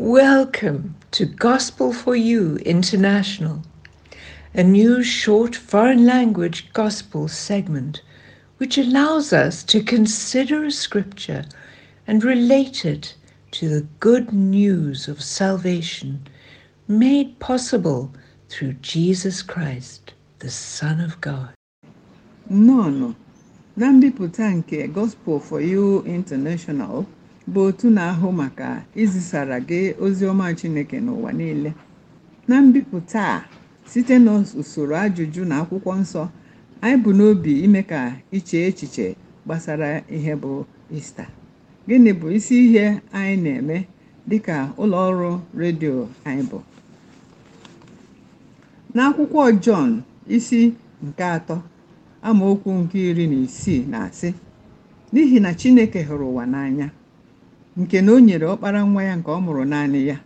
Welcome to Gospel for You International, a new short foreign language gospel segment which allows us to consider a scripture and relate it to the good news of salvation made possible through Jesus Christ, the Son of God. Nono, na mbipụta nke Gospel for You International bụ otu na-ahụ maka izisara gị ozi ọma Chineke n'ụwa niile na mbipụta a site n'usoro ajụjụ na akwụkwọ nsọ anyị bụ n'obi ime ka iche echiche gbasara ihe bụ ista gịnị bụ isi ihe anyị na-eme dị ka ụlọ ọrụ redio anyị bụ n'akwụkwọ Jọn isi nke atọ amaokwu nke iri na isii na-asị n'ihi na Chineke hụrụ ụwa n'anya nke na o nyere ọkpara nwa ya nke ọ mụrụ naanị ya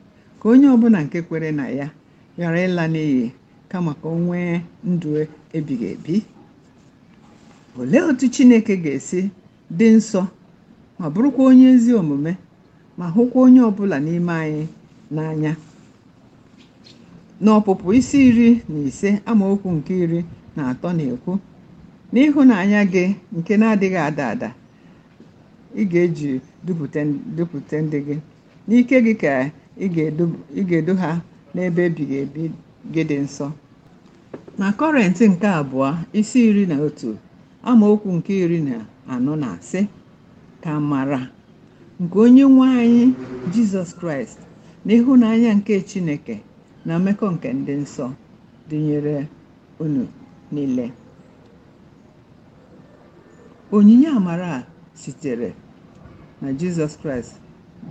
ka onye ọbụla nke kwere na ya ghara ịla n'iyi kama ka o nwee ndụ ebighị ebi olee otu chineke ga-esi dị nsọ ma bụrụkwa onye ezi omume ma hụkwa onye ọbụla n'ime anyị n'anya n'ọpụpụ isi iri na ise amaokwu nke iri na atọ na-ekwu n'ịhụnanya gị nke na-adịghị ada ada ị ga-eji dupụta ndị gị n'ike gị ka ị ga-edu ha n'ebe ebighị ebi gị dị nsọ na kọrentị nke abụọ isi iri na otu amaokwu nke iri na anọ na asị ka mara nke onye nwe anyị jizọs kraịst na ịhụnanya nke chineke na mmekọ nke ndị nsọ dịnyere unu niile onyinye amara sitere na jizọs kraịst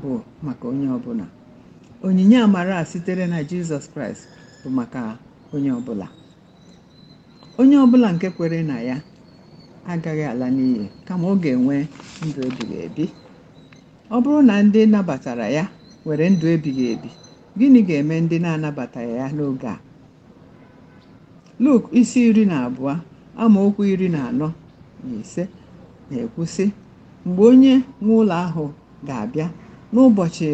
bụ maka onye ọbụla onyinye amara a sitere na jizọs kraịst bụ maka onye ọbụla onye ọbụla nke kwere na ya agaghị ala n'iyi kama ọ ga-enwe ndụ ebighị ebi ọ bụrụ na ndị nabatara ya were ndụ ebighị ebi gịnị ga-eme ndị na-anabataghị ya n'oge a Luk isi iri na abụọ amaokwu iri na anọ na ise na ekwusị mgbe onye nwe ụlọ ahụ ga-abịa n'ụbọchị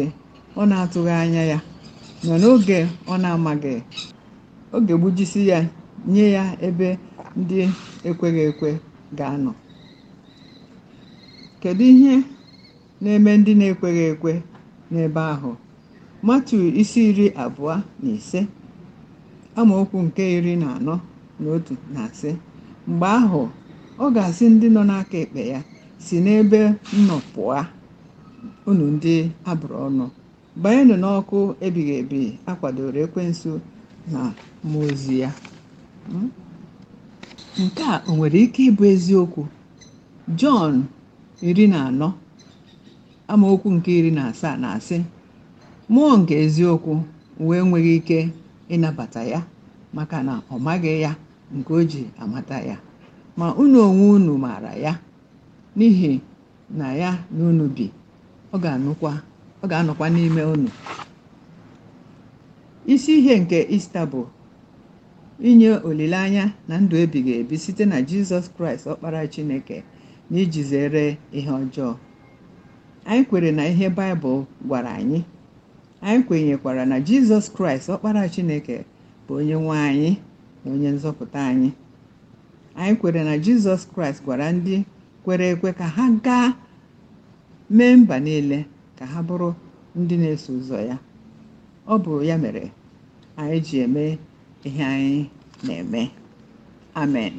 ọ na-atụghị anya ya nọ n'oge ọ na-amaghị oge gbujisi ya nye ya ebe ndị ekweghị ekwe ga-anọ kedu ihe na-eme ndị na-ekweghị ekwe n'ebe ahụ matu isi iri abụọ na ise amaokwu nke iri na anọ na otu na asị mgbe ahụ ọ ga-asị ndị nọ n'aka ekpe ya si n'ebe nnọpụ a unu ndị abụrụ ọnụ banyenụ n'ọkụ ebighị ebi akwadoro ekwensu na mmụọ ozi ya nke a o nwere ike ịbụ eziokwu jọn iri na anọ amaokwu nke iri na asaa na-asị mmụọ nke eziokwu wee nweghị ike ịnabata ya maka na ọ maghị ya nke o ji amata ya ma unu onwe unu maara ya n'ihi na ya na unu bi ọ ga-anụkwa anọkwa n'ime unu isi ihe nke ista bụ inye olileanya na ndụ ga ebi site na jizọs kraịst ọkpara chineke na iji zere ihe ọjọọ anyị kwere na ihe baịbụl gwara anyị anyị kwenyekwara na jizọs kraịst ọkpara chineke bụ onye nwe anyị na onye nzọpụta anyị anyị kwere na jizọs kraịst gwara ndị kwere ekwe ka ha gaa mee mba niile ka ha bụrụ ndị na-eso ụzọ ya ọ bụ ya mere anyị ji eme ihe anyị na-eme amen